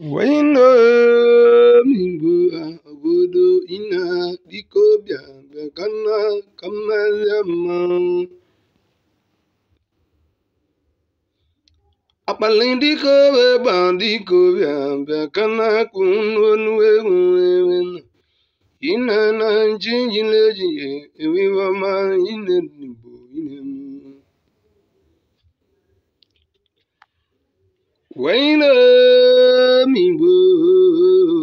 Waino mingu abudu ina dikobia kana kamalama. Apalindiko bandiko bia bia kana kununu ewu ewu na. Ina na leji jinje ewi wama ina Wailam Igbo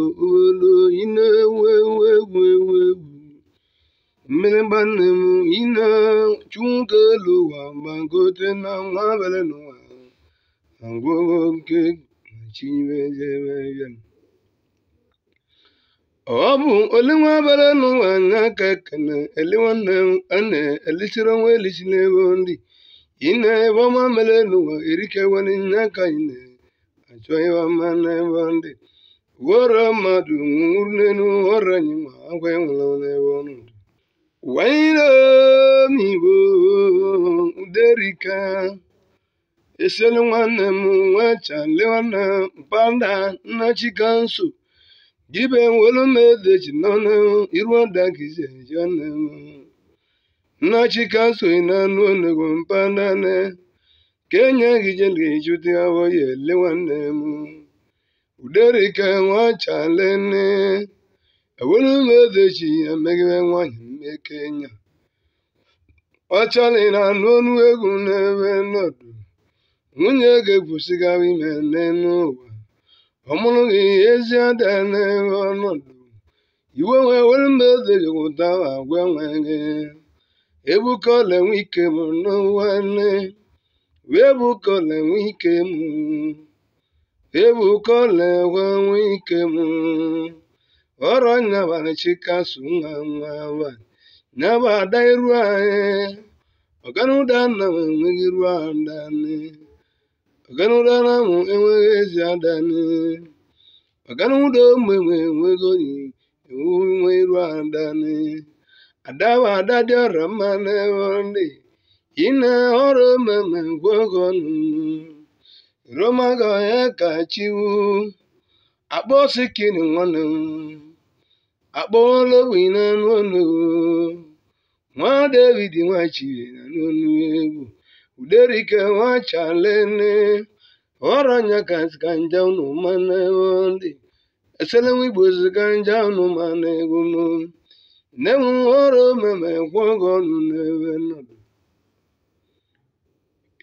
obodo ị na-ewu ewu egwu ewu egwu mmiri gbanne m ị na-achụ elu ụwa gbagote na nwa bere n'ụwa agwụghọ nke chibezebeyan ọ bụ olinwa bere n'ụwa aka kene elinwanne m ana elisiri onwe elisi ebe ndị ị na-ebe ọma mere n'ụwa achọghịwa mmanụ wara mmadụ nwụrụ n'elu ọrịa anyị ma agwa enwere n'ebe ọnụ wanyeremigbo uderika eselu nwanne m nwa chale mpada nna chikanso jibe welu mede nọnụ iruọda gizi eji nne m ị na-anụ onugbu mpada ne kenye gijengijudiawo yele nwanne m uderike nwachalene ewere m edeji ya megide nwanyị mmekenya ọchali na anụ ọnụ egwu na-ewe nọdụ nwunye ga-ebusigara ime n'elu Ọ ọmụrụ gị ezi ada na ọnọdụ iwe wee were mba edeghị ụda agwa nwe gị ebuka ọla enwe ike m n'ụwa nne Webuga nwe ike m le nwe ike m ọrọ nyabara chikasu nwa nwa nwa ada iru anyị ọganuda na m enweghị iru adani ọganuda na m enweghị ezi adani ọganuda ụmụ enwe enweghị oyi enwe iru adani adaba adadị ọra mma n'ebe ndị Ine ọrụ mmemme meme gwogonu, romago ya kachiwu, akpọ sikini nwanu, akpọ ologbi na nwanu, nwa David nwachiri na n'onu egwu, uderike nwachalene, ọrụ anya kasika nja unu mana ndị, esele nwigbo zika nja unu mana egwu m, nne m ọrụ mmemme meme gwogonu n'ebe nnụnụ.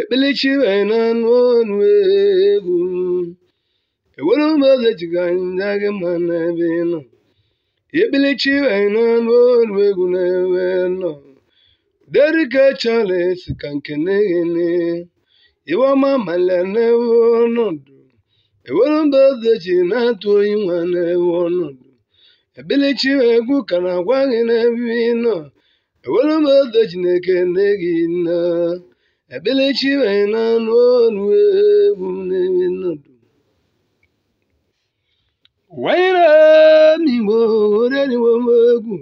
ekpelechi wena n'ọnụ egwu ewu. ụmụoge gị mma n'ebe nọ ekpelechi egwu na-ewe nọ derike charles ka nke na-eghene iwema ewe ọnọdụ enwere ụmụoge ji na-atụ oyi nwa na-ewe ọnọdụ ekpelechi egwu ka na-agwa gị n'ebe ị nọ enwere ụmụoge ji na-ekene gị nna Ekpelechi wee na-anụ ọnụ egwu na-ewe nnọdụ wanyere m igbo oreriwo egwu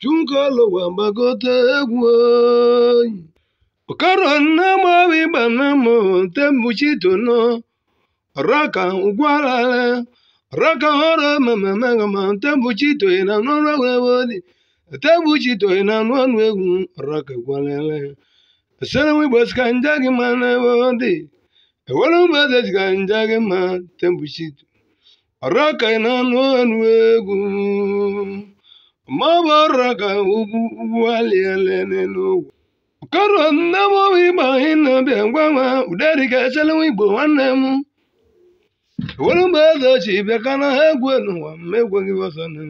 chunkọlụwa gbagote egwu oyi okoro nna mawi gbanamụ tembụchitonọ raka ụgwarale raka ọrụ mamamagama na egwu dị tembụchitoye na n'ọnụ egwu raka gwarale Asana mi bas kanjagi mana wodi. Ewala mi ma tembushito. Araka inano anwegu. Maba araka ugu wali alene no. Karo namo wiba hina biangwama. Udari ka asana mi bo wanemu. Ewala mi bas as ibe kana egwe no wa megwe givasana.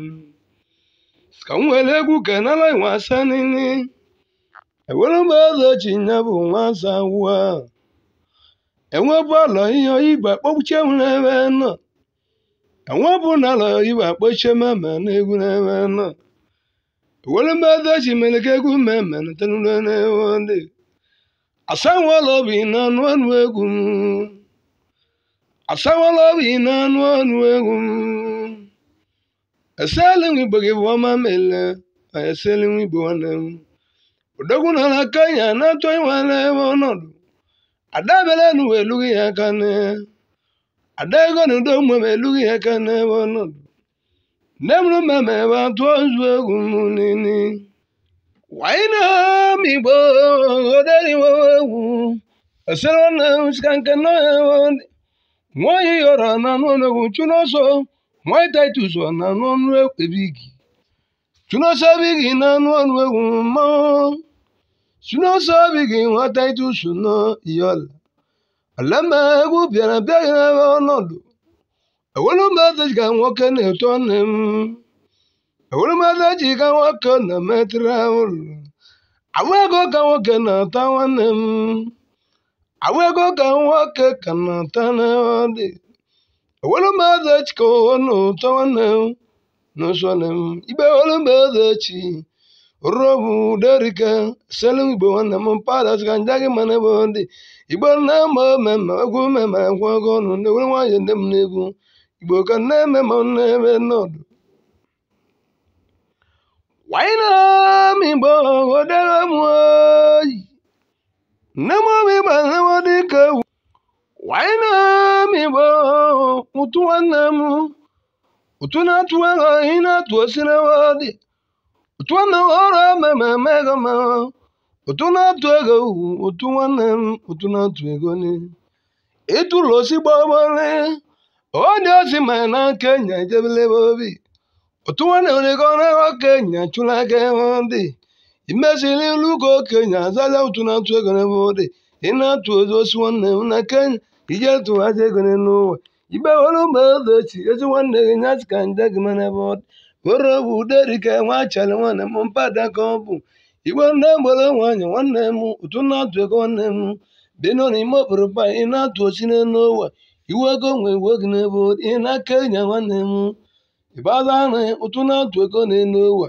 Skamwele gu ewelụmụeze na bụ nwata nwa enwebụ ụlọ ihe igbe kpọchie n'ebe nọ enwebụ ụlọ igbe kpọchie mama na egwu n'ebe nọ ewelụmụeze ji mere ka egwu mmemme natanụrụ n'ewe ndị asanwụla na-anụ ọnụ egwu m asanwụla na-anụ ọnụ egwu m eselinwe igbo gị bụ ọma mele ma eselinwe bụ nwanne m odogwu nọ na Kenya na-achọ ịnwale ebe ọnọdụ ada belenu elughị ya aka ada ego na udo mgbe elughị ya na n'ebe ọnọdụ nne mụrụ mmemme ebe atụ ozu egwu nini waina m igbo oderiwo egwu esere na sika nke nọ nwaanyị yọrọ na anụ ọnọgwụ chụrụ ọsọ nwaanyị titus na anụ ọnụ ekpebi igi Suno sabigi nanwa nweguma. Suno sabigi wataitu suno iyola. Alama egu biara biara wa onodu. Ewolu mada jika nwoke na etonem. Ewolu mada jika nwoke na metra olu. Awa ego ka nwoke na ata nwannem. Awa ego ka nwoke ka na ata na ọ dị. Ewolu mada na ụtọ n'osonye ibe olumbezechi robu derike selum igbo nwanne m padas ka nja gị mana ebe dị igbo na-eme mmemme egwu mmemme egwu ọgụ ọnụ na-ewere nwanyị ndị m igbo ka na-eme ma na-eme nọdụ wainam igbo odere m oyi m nwanne m ego inatuosinawodi utuanaworo mamamegoma utunatuego utuwanem ozi ma na kenya jebilebobi utuwaneonegonego kenya chulakewodi imesili lugo kenya zaza utunatuegonebodi inatuozosi nwannem na kenya n'ụwa. mgbe igbewere echi, ezi nwanne gị nyachi ka nde gị mere ebe ọ dị were bụ uderike nwa chere nwanne m mpada ka ọ bụ igbe nne gbere nwaanyị nwanne m ụtụ na-atụ ego nwanne m bino na ime obodo ba ị na-atụ osi n'elu ụwa iwe ego nwe iwe gị n'ebe ọ dị ị na-aka enyi nwanne m ịbaza ahụ ụtụ na-atụ ego n'elu ụwa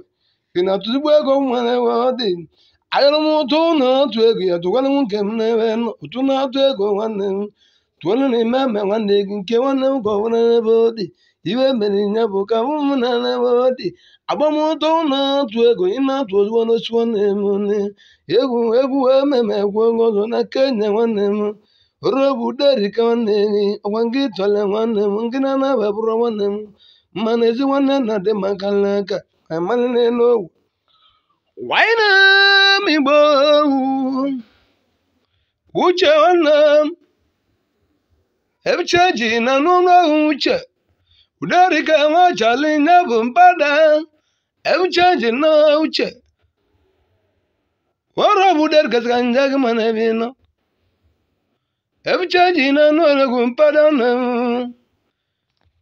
ị na-atụzigbo ego nwere ebe ọ dị ayọrọ m ụtụ na-atụ ego ya tụkwara m nke m n'ebe ụtụ na-atụ ego nwanne m tụọrọ e na ime ama nwanne gị nke nwanne m gọwara n'ebe ọ dị iwe mere ya bụ ka m na n'ebe ọ dị agbamụtọ na-atụ ego ị na-atụ ozugbo n'ochi nwanne m nne egwu egwu ememe egwu ọzọ na kenya nwanne m robu derika nwanne gị ọgwa gị tọle nwanne m gị na-anaba bụrụ nwanne m mmanụ ezi nwanne na-adị maka aka, amalị n'elu owu waịna m igbo uche nwanne m ebucheji na n'ụlọọhụ uche uderika nwachali ya bụ mpada ebucheji na uche wọrọ bụ uderikasịka nje gị mana ebe nọ ebucheji na n'ụlọọgwụ mpada na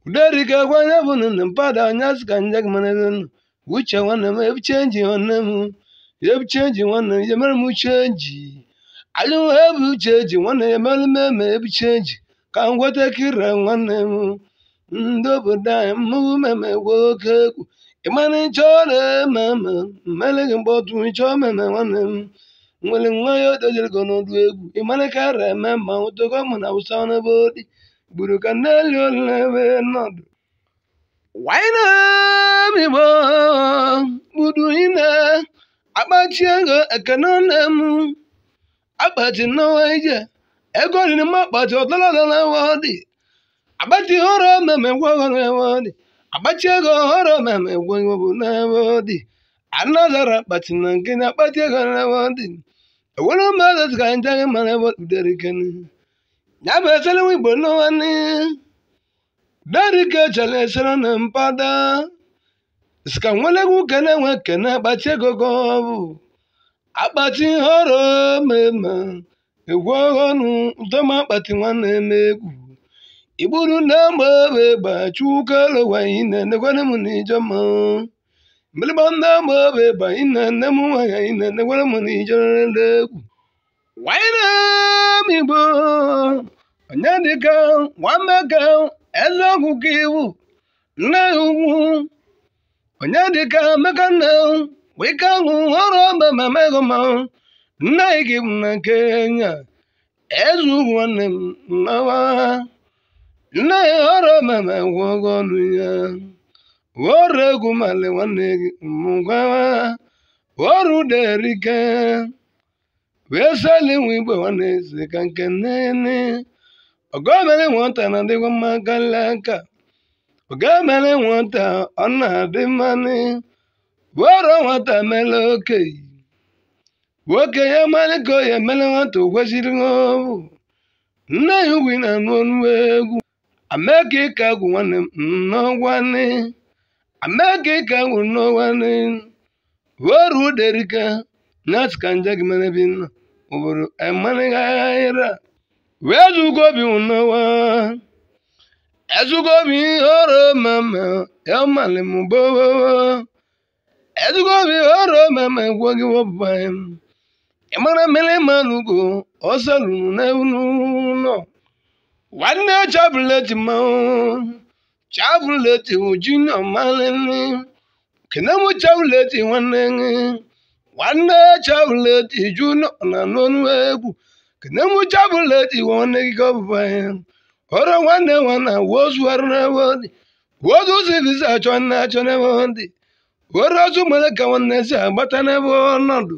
uderika gwanye bụ na mpada nya sịka nje gị mana ebe nọ uche nwanne m ebucheji nwanne m ebucheji nwanne m yemere m ucheji alụm ebucheji nwanne ya mere m eme ebucheji ka m nweta kira nwanne m ndị obodo anyị mmụọ meme nwoke oke egwu ịmana ịchọ na-ememe mgbe ọtụ ịchọ meme nwanne m nwere nwa ya odojere gị n'ọdụ egwu ịmana kara eme ma ụtọkọ na awụsa n'ebe odi gburu ka nneli olile ebe nọdụ waina migbo gbudu ine akpachie ego ekene nne m akpati nnawa ije ego oriri mma kpọchi ụtọlọlọwodị agbachi horo meme gwogowodị agbachi ego horo meme gwogowodị anọzara kpachi na nke na akpachi ego newodị ewere mmadụ zika njaghị mara woderiken ya bụ esere igbo n'ụwa derike chere esere na mpada sika nwelegwu kene nwe kene akpachi ego gọbụ akpachi horo meme egwu ọghọnụ ntọma akpati nwanne m egwu igburu nne maobe gbachukwulowa ine negwere m n'ijọma mgbịrịgba nne maobe gba ine nne m nwanyị ine negwere m n'ijọrele egwu wanyere m igbo onye dịka ka, eze ọgwụ ka iwu nne ya ugwu onye dịka mmekanne wike ahụ ọrụ ọba ma megoma Nne gị m na Kenya eze nwanne m nawa nne ya ọrụ mama gwọgo ọnụ ya ọrụ egwu male nwanne gị mgawa ọrụ derike wee sali nwa igwe nwanne eze ka nke nnene ọgọmere nwata na adịghị aka nwata ọ na-adị mmanụ nwata mere okenye Woke ya mara ka ya emere nwata o kwesịrị ọbụ nne ya ugwu na-anụ ọnụ egwu ameka ịka agwụ nwanne n'ọgwanne ameka ịka agwụ n'ọgwanne oru uderika nyasị ka nje gị mere bi nna obodo emanịghịra wee zugo obi n'ọwa mama ya malị mụgboo ezugo obi oro mama gwo gị wọbụbanye m ịmara mere manụgo ọzọ lụrụ n'ụlọ nwanne chabụla ji mmanwụ chabụla ji uju na malele kenem chabụla ji nwanne nwanne chabụla ji ju na n'ọnụ egwu kenem chabụla ji nwanne gị gọbụba ya ọrụ nwanne nwana wozu arụ n'ebe ọ dị wozu zivisa achọ na achọ n'ebe ọ dị ọrụ ọzọ mere ka nwanne si agbata n'ebe ọnọdụ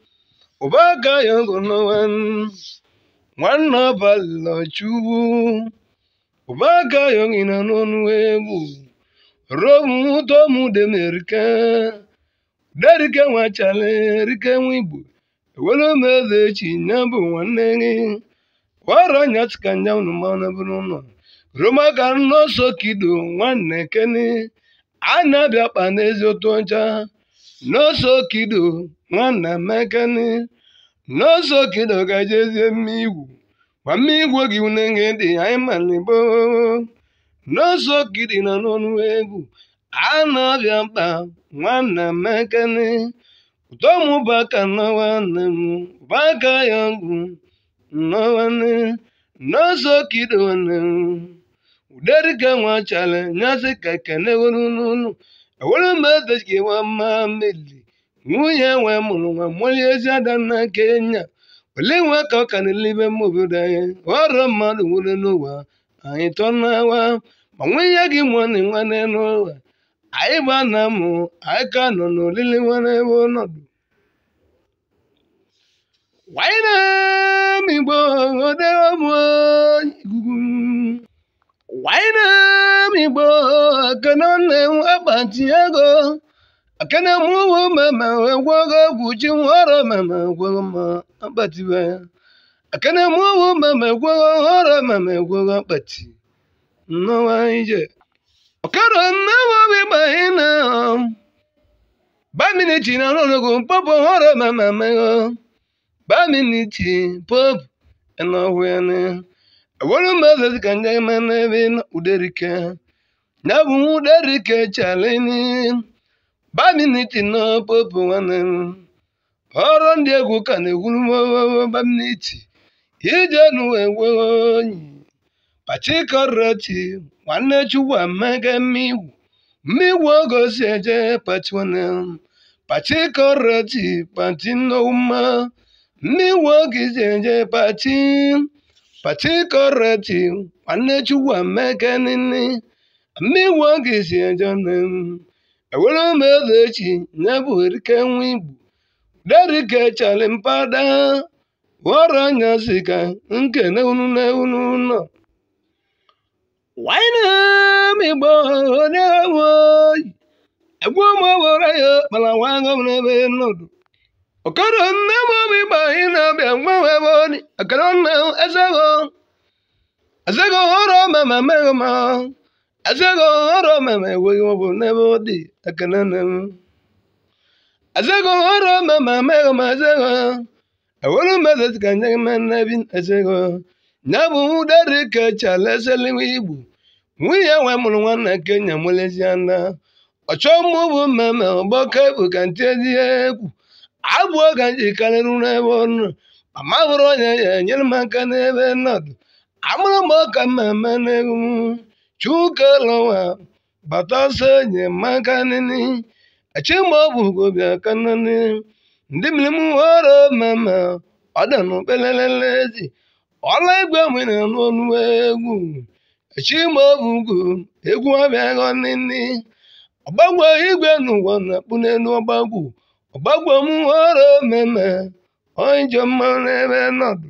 ụbaga ya gonowan nwanna balachuwu ụbaga ya ngina n'ọnụ egwu romu tomu demerike derike nwachale rike nwa igbo ewelu meze echi nya bụ nwanne gị wara nyatika nya unu bụrụ ụlọ roma ka nọọsọ kido nwanne keni a na-abịa kpa n'ezi ụtụ ọcha n'osokido nwanna mekani n'osokido ka e jezie mmigwu igwu mmigwu gị unenge dị anyị malibo n'osokidi nọ n'ọnụ egwu na-abịa mkpa nwanna mekani utomụbaka nwanne m baka ya ọgwụ nwanne n'osokido nne m uderike nwachara nyasị ka kene weru n'ụlọ enwere mmadụ ji nwa mma nwunye nwe mụrụ nwa mmụrụ ezi ada na kenya ole nwe ka ọ ka n'elibe mma obodo anyị ọrụ mmadụ nwere n'ụwa anyị tọ n'awa ma nwunye gị nwanne nwanne n'ụwa anyị gba na mụ anyị ka nọ n'olili nwanne ebe ọnọdụ waịnam Igbo akenọnne m akpati ego akene m ụmụ mama egwego egwu ji nwọrọ mama egwego m akpati nnọwa ije ọkara nne nwobi gbaghị na baminichi na ọnụnụgụ popu nghọrọ mama mego baminichi popu ẹnọhwẹni ẹwọlọmọdé Não derike chaleni. Baminiti no popo wanen. Ọrụ ndị egwu ka na-egwuru bamniti. Ije nu ewe onyi. Pachikoroti nwanne chukwu amaga mmiwu. Mmiwu eje pati pati eje pati. nini. mmegbu a ga-esi eje nnem ewere m eze echi nye bụ erike nwa igbo derike chali mpada ghọrọ anya si ka nkene unu na unu nọ nwanne m igbo onye woyi egwu m owere ya kpara nwa agọ m n'ebe nọdụ ọkara nne m obi igbo anyị na-abịa mgbanwe ebe ọdị akara nna m ezego ezego ghọrọ ma ma meghị ma azego ọrụ meme enweghị ọbụ n'ebe ọ dị ekele na ka nye igbo nwunye nwe mụrụ nwanne kenya mụleziana ọchọ mụ bụ mmemme ọgbọke bụ ka ntị ezihe egwu abụọ ka nji karịrị n'ebe ọnụ mama hụrụ onye ya enyere m aka n'ebe nọdụ amụrụ m ọka mmemme n'egwu chukwueloha gbatazie enyemaka nini achimobugobia kanani ndị mmiri were mama ọdanụkpelelelezi ọla igwe nwere n'ọnụ egwu ugwu egwu abịaghọ nini ọgbagwo igwe n'ụwa na-akpụ n'elu ọgbagwo ọgbagwo m were mama onye jọ mma n'ebe nọdụ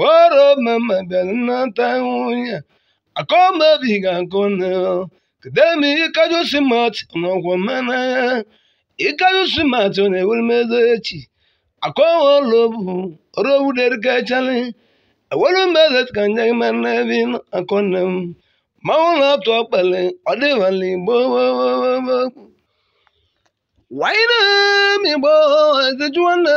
woro mama belnata nwunye akaomebiga nkụ kedemi ikajusimat n'ọgwọmanaya ikajusimat na-eweremeze echi akọwolobu robuderikechali ewerumezekajemanabin akọnem mmanwụ na-atụ ọkpali ọdịvala igbo wainem igbo ezijụwanne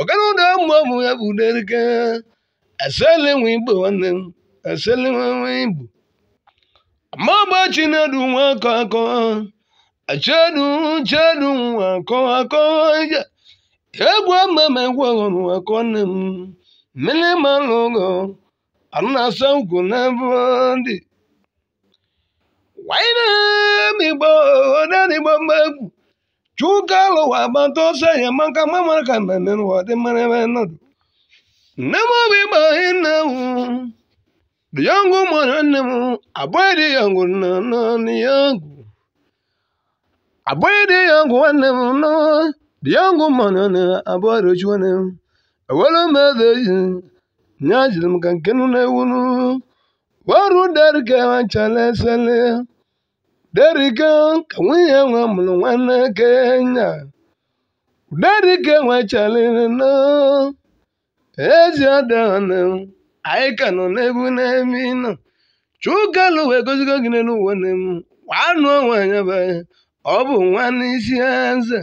ọkara ụmụ ụmụ ya bụ derike esele nwe igbo nwanne m esele nwe chinedu akọ akọ chedu chedu akọ akọ egwu ọhụrụ akọ m mmiri malụ ụgọ arụ na Chukalo wa banto se ya manka mamar kan nan wa de mane nan. Namo bi ba hinawu. Da yango mananmu abai da yango nan yango. Abai da yango wannan no. Da yango manana abai da juwanan. Wala ma da yin. Nyajil mkan kenu na wunu. Waru dar ke wa chale Uderike ka nwunye nwa mụrụ nwanne Kenya. derike nwechaliri na ezi anyị ka nọ n'ebu n'emi nọ chukalu wee gozigo gị n'elu ụwa m nwanụ onwe anya be ọ bụ nwanne isi eze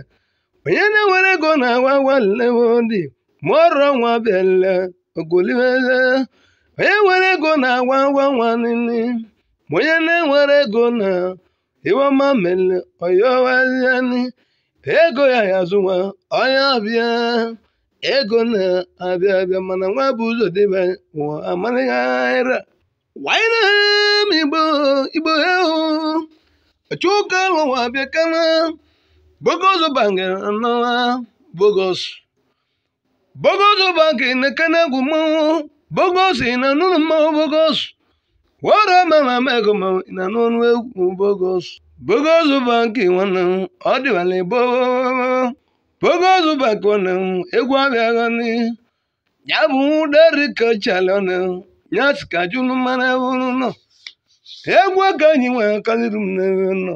onye na-ewere ego na-awa walewodi mụọrọ nwa bịala ogolibeze onye nwere ego na-awa nwa nwanne ma onye na-enwere ego na iwamamele oyowaziani ego ya ya azụnwa onye ọbịa ego na-abịa abịa mana nwa bụ ụzọ dịba ụwa amanaghị ara wanyere m lụwa abịa kama bogos bangere n'ọnwa bogos bogos bangere na kana egwu mmanwụ bogos na nụlụ mmanwụ wara mama mego ma na n'ọnụ egwu bogos bogos banki nwanne m ọ dịwala igbo bogos banki nwanne m egwu abịaghị ni ya bụ deri ka chala ọnụ ya si ka jụrụ mmanụ ewuru nọ egwu ka anyị nwere kaliri m n'ebe nọ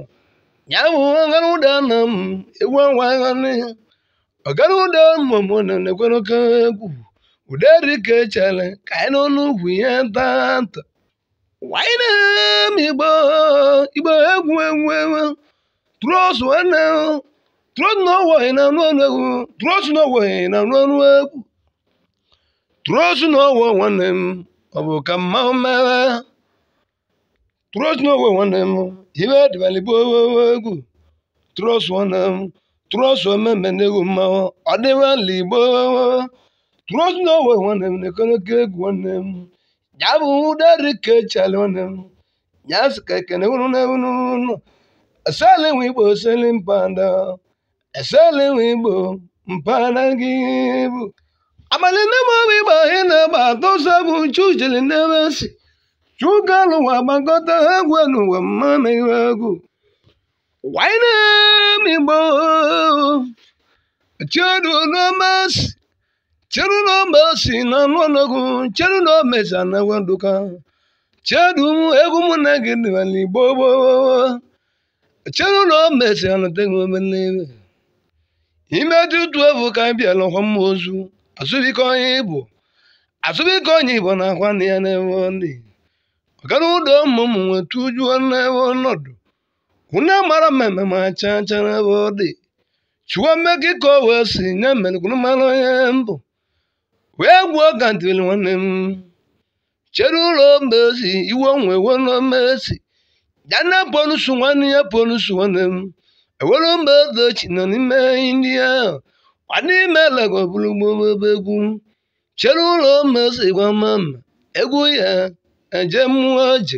ya bụ ọgara ụda na m egwu awaghị ni ọgara ụda mmụọ na na-ekwere oke egwu ụderi ka echala ka anyị n'ọnụ ugwu ihe taa taa. wainem igbo igbo Igba egwu egwu tros nwanne tros na owohi na anụ ọnụ egwu tros na na ọnụ egwu tros na owo nwanne m ọ bụ ka mma mmewe tros na owo m ibe dịbalịgbo egwu tros nwanne m tros omeme na egwu mmanwụ ọ igbo tros na owo nwanne m na ekoneke egwu nwanne m ya bụ dere ka echere unu ya ke ka ekene unu na unu unu esele nwe igbo esele mpanda esele nwe igbo mpana gị bụ abalị nne m ọbụ igbo ahụ na-agba atọsọ bụ chujele n'ebe si chuka n'ụwa gbakọta egwu n'ụwa mmanụ iwe egwu waịna m igbo chiedu n'ọma si chịrị na omesi na na omesi anawe chịrị chedu egwu mụ na gị dịwala igbo esi na omesi anateghi omenebe ime dị utu evu ka bịa ọkwa mma ozu asụbike onye igbo asụbike onye igbo na akwa na ya n'ebe ndị na ụdọ ụmụ n'ebe ọnọdụ mara mmemme ma cha cha n'ebe ọ dị chụwa ka o wee si nye mbụ wee gbuo gandil nwanne m chere ụlọ mezi iwe nwe wemezi dana bonusu nwanne ya bonusu nwanne m ewere mbedochi nọ n'ime ndị ahụ ọnime legobụrugbobe egwu chere ụlọ mezi mama, egwu ya eje mmụọ je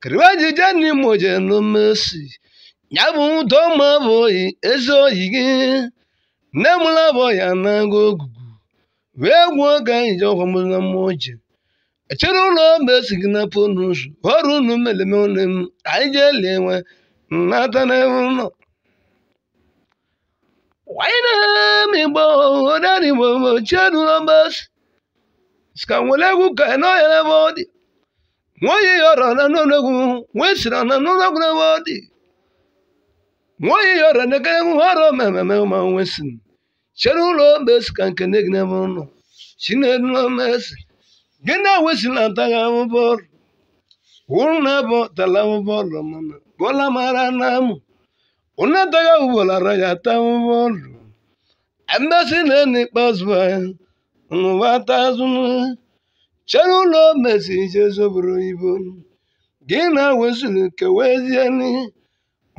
kiriwa jije n'ime oje n'omesi ya bụ ụdọ ma bụ oyi ezi oyi gị nne mụrụ bụ ya na-agụ ogu wee gwuo oge anyị ji ọgwa mụna mma oji echere ụlọ mgbe esi gị napụ unu ụzọ ọrụ unu meleme ụlọ m anyị jee lie nwe nnata n'ebe ụlọ waịnamigbo odanigbo chiedulombes ska nwere egwu ka na n'ebe ọ dị nwoye yọrọ na n'ụlọgwu nwee siri na n'ụlọgwu n'ebe ọ dị nwoye yọrọ na ekere egwu ọrụ mmemme ma nwesịrị chere cherulo mesi ka nke nne gị n'ebe ụnụ chinedulo mesi gị na-ewesila ataghị ahụbọọlụ wụrụ na bụ tala ahụbọọlụ mana bọla mara na amụ ụnụ ataghị ahụbọọlara ya ata ahụbọọlụ emesi na enu ikpeazụ ya ụnụwa ata azụ cherulo mesi ije zoburu ibo gị na-ewesili kewezieni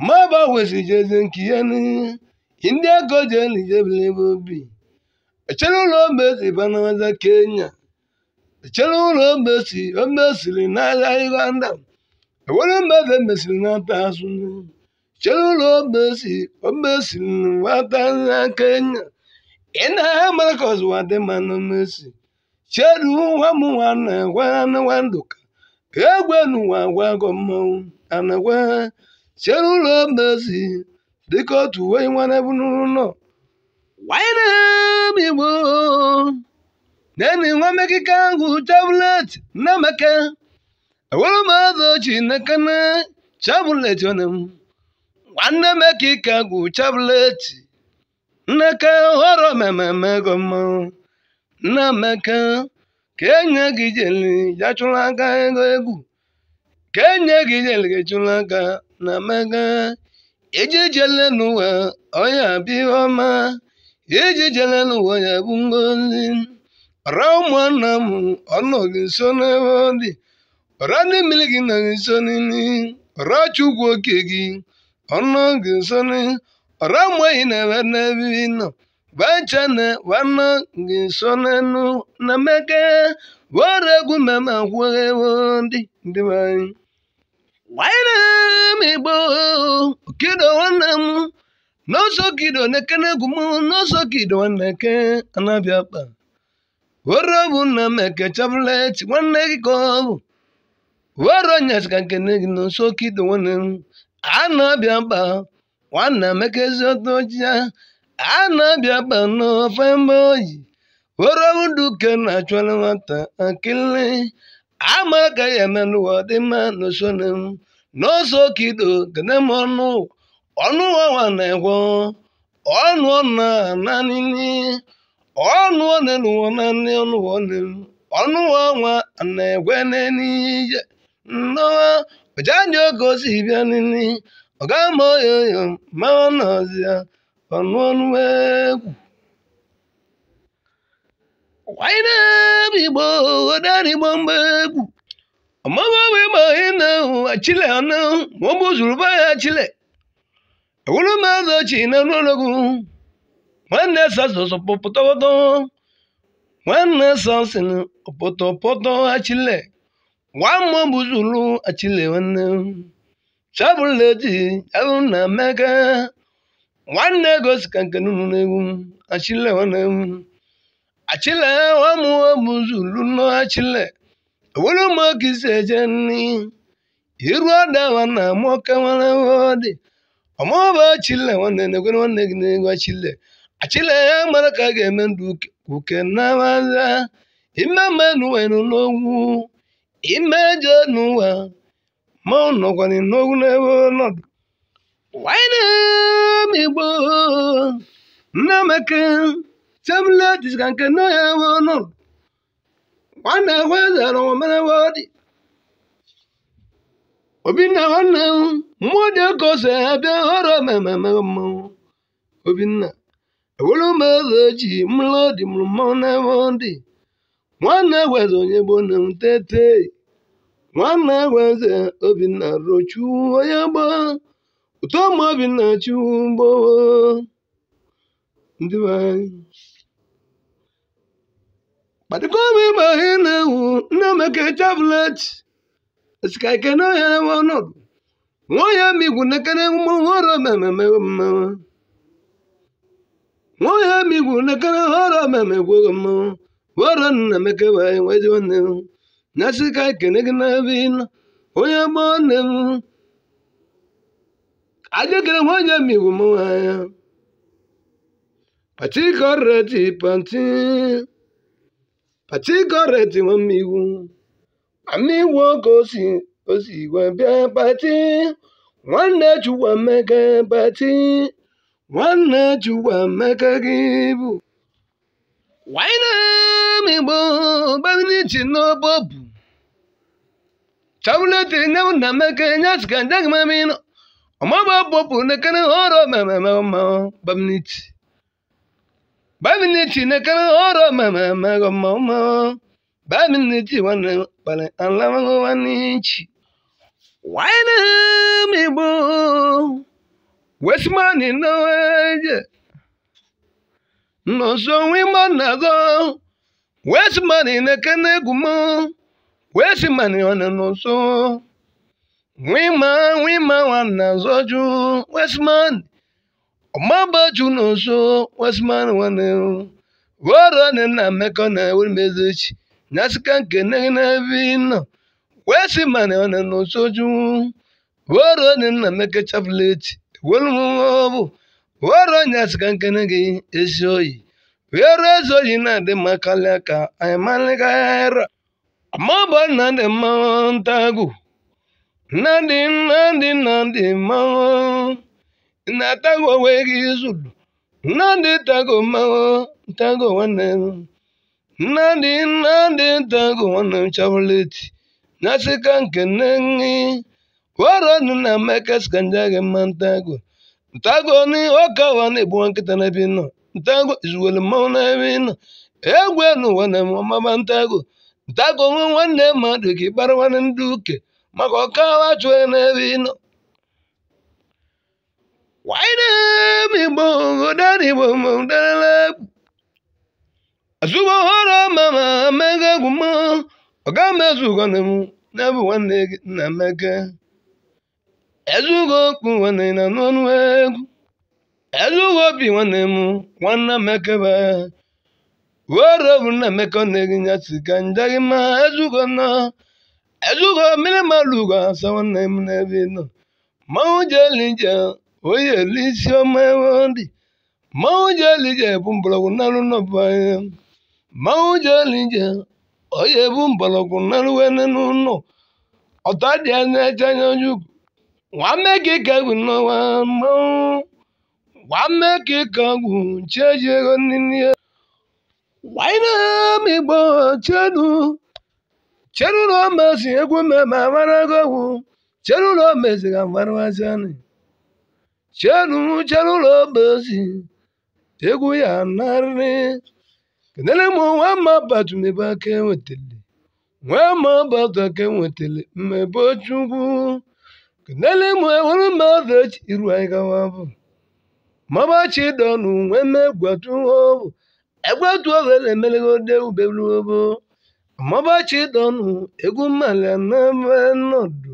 ma ba awesi jezi nke ya n'ihe Ndị ego ji jeni ebe obi echere ụlọ ogbesi banaza Kenya echere ụlọ ogbesi omesiri n'ala Uganda enwere mmefe e mesiri n'ata azụ chere ụlọ ogbesi omesiri nwata na Kenya ina ha mara ka ọzụwa dị ma na mesi cheru nwa m nwana gwa nwa ndụka egwe n'ụwa gwago mmanwụ ana gwa chere ụlọ ogbesi dịka otu uwe nwere ebunụlọ wainam igbo neni nwa mekike ahụ tablet nnamaka ewere m azụ ochi nakana tablet onem nwanne mekike gwụ tablet nnaka họrọ mmemme ego mmanwụ nnamaka ka enye gị jeli ya chụrụ aka ego egwu ka enye gị jeli gị chụrụ aka na mega ejejelenụwa onye abịọma n'ụwa onye bụ ngozi ọra ụmụnna m ọnọghị nso n'ebe ọ dị ọra ndị mmiri gị nọghị nso n'ili ọra chukwu oke gị ọnọghị nso n'ili ụmụ enyi na-ebe n'ebe nọ gbachana wana gị nso n'enu na meke were egwu mama kwuo ndị ndị nwanyị gbanyere m igbo kido nwanne m n'ọsọ kido na-eke na-egwu m n'ọsọ kido na anabịa were bụ nna m eke nwanne gị ka ọ bụ were onyesika nkene gị n'ọsọ kido nwanne m anabịa kpa nwanne m eke eziọtọ ya anabịa kpa n'ofe mba oyi were bụ duke na-achụla nwata akịlị ama ka ya eme n'ụwa dị mma na m ọnụ ọnụ ọnwa na-egwo ọnụ na nanini ọnụ na onenuwo ọnụ ọnụwa onenu ọnwa na-egwe n'enije nnọwa ọjanye oge osi bịa nini ọgama oyoyo ma ọnọzia ọnụ ọnụ egwu wainebe igbo odarigbo mgbe egwu chile ọnụ ma ọ bụ zuru be ya chile ewuru mmadụ ochi na n'ologu nwanne sasọsọ pọpọtọpọtọ nwanne sasịn pọtọpọtọ achile nwa mmụọ nwanne na meka nwanne gosika nke achile nwanne nọ were maki sejeni iru adawa na moka wana dị ọmụba chile nwanne na-ekwe nwanne gị na-egwu achile achile ya mara ka a ga-eme ndụ uke na maza ime menụwe n'ogwu ime je n'ụwa ma nọkwara n'ogwu n'ebe ọnọdụ wanyị na-emigbo nna meke tebụl dịka nke nọ ya ebe ọnọdụ nwanne gwezere omerewodị obinna nwanne m mmụọ dị oke ose abịa họrọ mmemme mmanwụ obinna ewere m eze ji mlụ dị mụrụ mmanwụ n'ebe dị nwanne gweze onye gboo na m tete nwanne gweze obinna rochu onye gboo ụtọ ma obinna chuwu gboo ndị kpatikọba ịba ihe na-ewu nnaemeka ọnọdụ nwaohia migwu nekene họrọ mmemme migwu nekene họrọ mmemme gwogo mmanwụ họrọ nnaemeka wee nwanne na sika gị n'ebe ịnọ onye gbọọ nne m ajekere nwaohia migwu patigọrẹ tí wọ́n mi wù àmì wo kò sì kò sì wà bí apatí wọ́n na ju wà mẹ́kẹ́ apatí wọ́n na ju wà mẹ́kẹ́ kíbu. wàá iná mi gbọ́ bẹ́ẹ̀ ni jìnnà bọ́ọ̀bù tawulete ne wo na meke nyasi ka ndege mami no ɔmɔ bɛ bɔ bu ne kene hɔrɔ mɛmɛmɛ ma bamniti. Bamini chi na kana oro mama mago mama. Bamini chi wana pale alama go wanichi. Wana mi bo. Westmani no eje. No so we monago. Westmani na kana gumo. Westmani wana no so. Wima wima wana zoju. Westmani. ọmaba nwanne wasimana wane woro ne na meko na wuri mezuchi nasika nke ne na vino wesimana wane no soju woro ne na meko chafleti wolmobu woro nyasika nke ne oyi. esoyi wero oyi na de makalaka aymalikara ọmaba na de na nandi nandi nandi na-atago onwe gị zulu nnadị tago mmanwụ ntago nwanne m nnadị nnadị ntago nwanne m na nasịka nke nne gị wọrọ nụ na mekes ka nja gị mma ntago ntago ni ọka wa na-egbu nkịta n'ebe nọ ntago izuwelu mmanwụ n'ebe nọ egwu n'ụwa na ọmaba ntago ntago nwe nwanne mmadụ ka ịkpara nwanne ndị uke maka ọka wa chụọ n'ebe ị nọ igbo odadịgbo mdarala azụba ọhụrụ mama amaka egwu m ọga mezugo na m na nwanne gị nna amaka ezugo okpu nwanne na n'ọnụ egwu ezugo obi nwanne m nwanna amaka ba were obu nna amaka nne gị ya si ka njaghị ma ezugo nọ ezugo mmiri malụ ugo asa nwanne m n'ebe nọ mmanwụ jeli njem onye isi ọma dị mmanwụ jelije bụ mgbọrọgwụ n'alụ n'ọbanye mmanwụ narụ onye bụ mgbọrọgwụ n'alụ wene n'ụlọ ọta dị anya eche anya onye ukwu nwanne gị ka egwu n'ọnwa mmanwụ ego nne wanyere m egwu mmemme chenu chenu ụlọ obosi egwu ya narị kenele m nwa mma batumebe aka enwetele nwa mma bata aka enwetele mmebe chukwu kenele m enwere mmadụ echi iru anyị gawa bụ mabachi dọnụ nwe me gwatu ọbụ egwatu ọbụ elemelegode ubelu ọbụ mabachi dọnụ egwu mmalị anambe nọdụ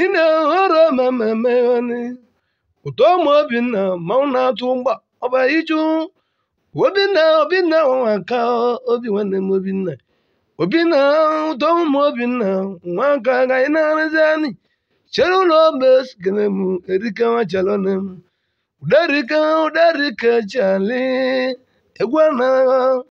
ị na-ehoro mameme ọnị ụtọ ụmụ Obinna mmanwụ na-atụ mgba ọba iju Obinna Obinna nwa ka obi nwanne m Obinna Obinna ụtọ ụmụ Obinna nwa aka ka anyị na-arụzi anyị chere ụlọ ogbe sikere m erike nwachalone m uderike uderike chali egwu anaghị